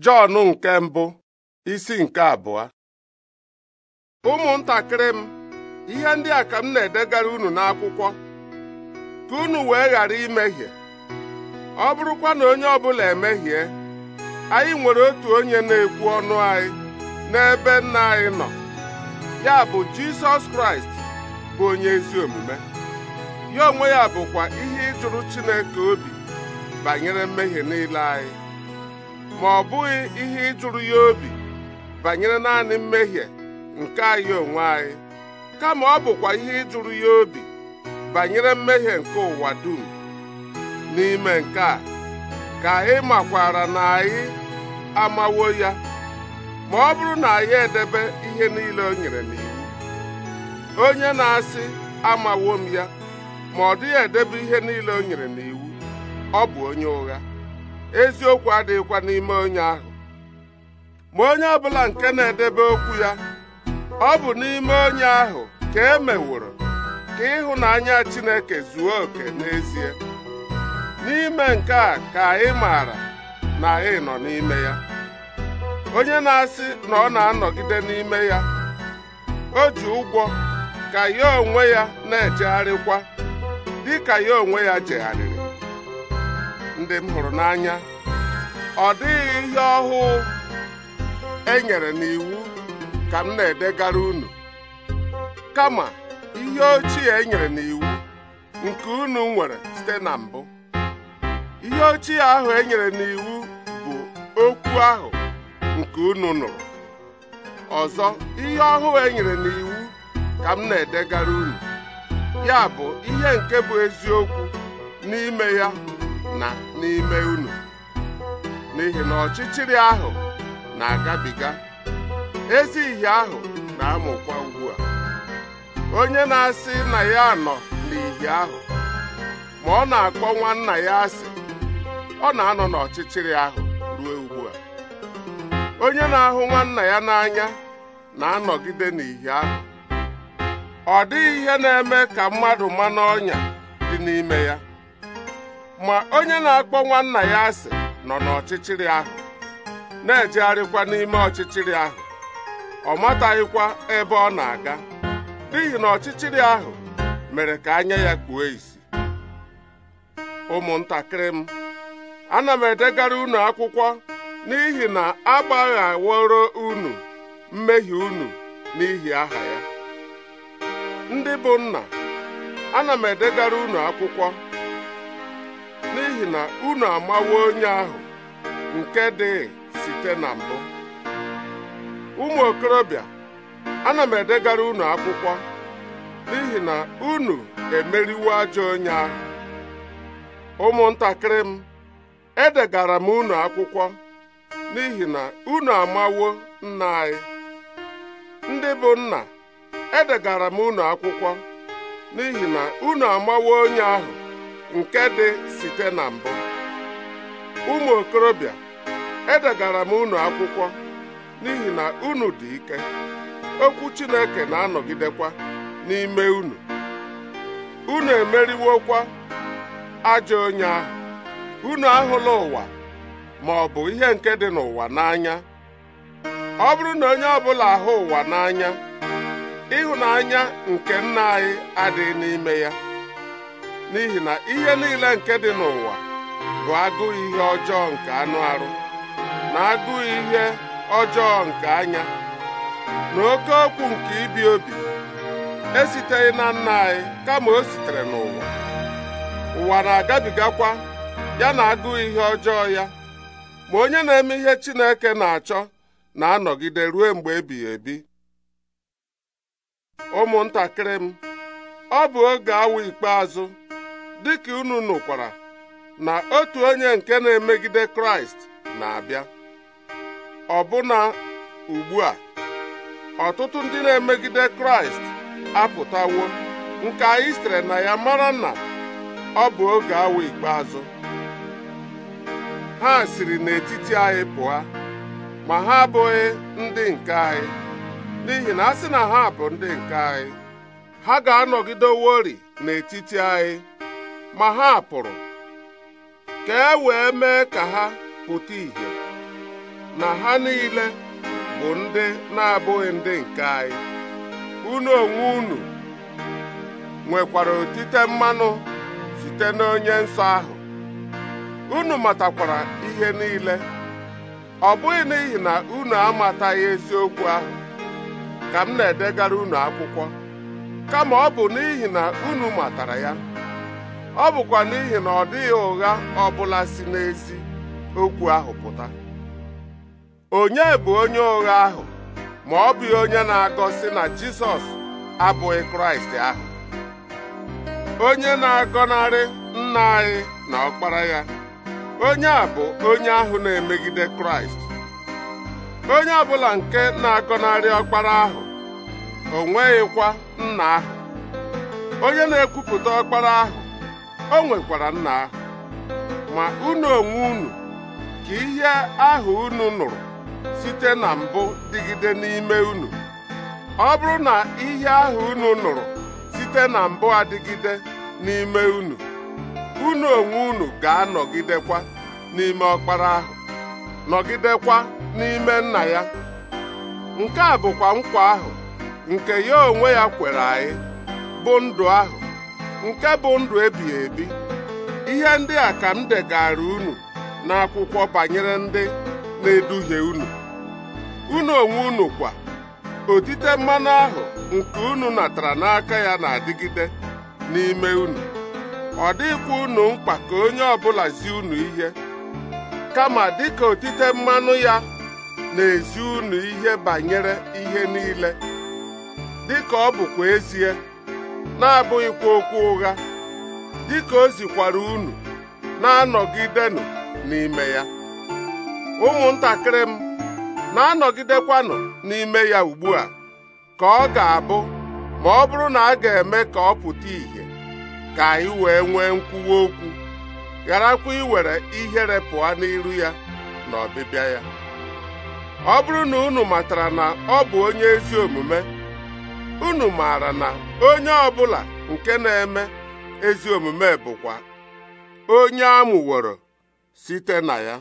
Jọn nke mbụ isi nke abụọ ụmụntakịrị m ihe ndị a ka m na-edegara unu n'akwụkwọ ka unu wee ghara imehie ọ bụrụkwa na onye ọbụla emehie anyị nwere otu onye na-ekwu ọnụ anyị n'ebe nna anyị nọ ya bụ Jisọs Kraịst bụ onye ezi omume ya onwe ya bụkwa ihe ịjụrụ Chineke obi banyere mmehie niile anyị ma ọ bụghị ihe ịjụrụ ya obi banyere naanị mmehie nke anyị onwe anyị kama ọ bụkwa ihe ịjụrụ ya obi banyere mmehie nke ụwa dum n'ime nke a ka anyị makwara na anyị amawo ya ma ọ bụrụ na anyị edebe ihe niile o nyere n'iwu onye na-asị amawo m ya ma ọ dịghị edebe ihe niile o nyere n'iwu ọ bụ onye ụgha eziokwu adịghịkwa n'ime onye ahụ ma onye ọbụla nke na-edebe okwu ya ọ bụ n'ime onye ahụ ka e meworo ka ịhụnanya Chineke zuo oke n'ezie n'ime nke a ka ị maara na ị nọ n'ime ya onye na-asị na ọ na-anọgide n'ime ya o ji ụgwọ ka ya onwe ya na-ejegharịkwa dịka ya onwe ya jegharịrị ndị m hụrụ n'anya ọ dịghị ihe ọhụụ e nyere n'iwu ka m na-edegara unu kama ihe ochie e nyere n'iwu nke unu nwere site na mbụ ihe ochie ahụ e nyere n'iwu bụ okwu ahụ nke unu nụrụ ọzọ ihe ọhụụ e nyere n'iwu ka m na-edegara unu ya bụ ihe nke bụ eziokwu n'ime ya na n'ime unu n'ihi na ọchịchịrị ahụ na-agabiga ezi ihe ahụ na-amụkwa ugbu a onye na-asị na ya nọ n'ihi ahụ ma ọ na-akpọ nwa nna ya asị ọ na-anọ n'ọchịchịrị ahụ ruo ugbu a onye na-ahụ nwanna ya n'anya na-anọgide n'ihi ahụ ọ dịghị ihe na-eme ka mmadụ ma n'ọnya dị n'ime ya ma onye na-akpọ nwanna ya asị nọ n'ọchịchịrị ahụ na-ejegharịkwa n'ime ọchịchịrị ahụ ọ mataghịkwa ebe ọ na-aga n'ihi na ọchịchịrị ahụ mere ka anya ya kpuo isi ụmụntakịrị m ana m edegara unu akwụkwọ n'ihi na agbaghaworo unu mmehie unu n'ihi aha ya ndị bụ nna ana m edegara unu akwụkwọ n'ihi na unu amawo onye ahụ nke dị site na mbụ ụmụ okorobịa ana m edegara unu akwụkwọ n'ihi na unu emeriwo ajọ onye ahụ ụmụntakịrị m edegara m unu akwụkwọ n'ihi na unu amawo nna anyị ndị bụ nna edegara m unu akwụkwọ n'ihi na unu amawo onye ahụ nke dị site na mbụ ụmụ okorobịa edegara m unu akwụkwọ n'ihi na unu dị ike okwu Chineke na-anọgidekwa n'ime unu unu emeriwokwa ajọ onye ahụ unu ahụla ụwa ma ọ bụ ihe nke dị n'ụwa n'anya ọ bụrụ na onye ọbụla ahụ ụwa n'anya ịhụnanya nke nna anyị adịghị n'ime ya n'ihi na ihe niile nke dị n'ụwa bụ agụụ ihe ọjọọ nke anụ arụ na agụụ ihe ọjọọ nke anya na oke okwu nke ibi obi esiteghị na nna anyị kama o sitere n'ụwa ụwa na-agabigakwa ya na agụụ ihe ọjọọ ya ma onye na-eme ihe Chineke na-achọ na-anọgide ruo mgbe ebighị ebi ụmụntakịrị m ọ bụ oge awa ikpeazụ dịka unu nụkwara na otu onye nke na-emegide kraịst na-abịa ọbụna ugbu a ọtụtụ ndị na-emegide kraịst apụtawo nke anyị sitere na ya mara na ọ bụ oge awa ikpeazụ ha siri n'etiti anyị pụa, ma ha abụghị ndị nke anyị n'ihi na a sị na ha bụ ndị nke anyị ha ga-anọgideworị n'etiti anyị ma ha pụrụ ka e wee mee ka ha pụta ìhè na ha niile bụ ndị na-abụghị ndị nke anyị unu onwe unu nwekwara otite mmanụ site n'onye nsọ ahụ unu matakwara ihe niile ọ bụghị n'ihi na unu amataghị eziokwu ahụ ka m na-edegara unu akwụkwọ kama ọ bụ n'ihi na unu matara ya ọ bụkwa n'ihi na ọ dịghị ụgha ọbụla si n'ezi okwu ahụ pụta onye bụ onye ụgha ahụ ma ọ bụ onye na-agọsị na Jizọs abụghị Kraịst ahụ onye na-agọnarị nna anyị na ọkpara ya onye a bụ onye ahụ na-emegide Kraịst onye ọ bụla nke na-agọnarị ọkpara ahụ o nweghịkwa nna ahụ onye na-ekwupụta ọkpara ahụ o nwekwara nna ahụ ma unu onwe unu ka ihe ahụ unu nụrụ site na mbụ dịgide n'ime unu ọ bụrụ na ihe ahụ unu nụrụ site na mbụ adịgide n'ime unu unu onwe unu ga-anọgidekwa n'ime ọkpara ahụ nọgidekwa n'ime nna ya nke a bụkwa nkwa ahụ nke ya onwe ya kwere anyị bụ ndụ ahụ nke bụ ndụ ebighị ebi ihe ndị a ka m degara unu n'akwụkwọ banyere ndị na-eduhie unu unu onwe unu kwa otite mmanụ ahụ nke unu natara n'aka ya na-adịgide n'ime unu ọ dịkwa unu mkpa ka onye ọbụla zi unu ihe kama dịka otite mmanụ ya na-ezi unu ihe banyere ihe niile dịka ọ bụkwa ezie na-abụghịkwa okwu ụgha dịka o zikwara unu na-anọgidenụ n'ime ya ụmụntakịrị m na-anọgidekwanụ n'ime ya ugbu a ka ọ ga-abụ ma ọ bụrụ na a ga-eme ka ọ pụta ìhè ka anyị wee nwee nkwuwa okwu gharakwa iwere ihere pụọ n'iru ya na ọbịbịa ya ọ bụrụ na unu matara na ọ bụ onye ezi omume unu maara na onye ọbụla nke na-eme ezi omume bụkwa onye amụworo site na ya